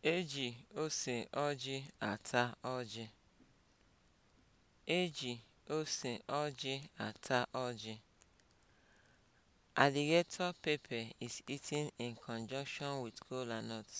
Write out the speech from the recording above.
E ji ose ọjị ata ọjị. E ji ata ọjị. Alligator pepper is eaten in conjunction with kola nuts.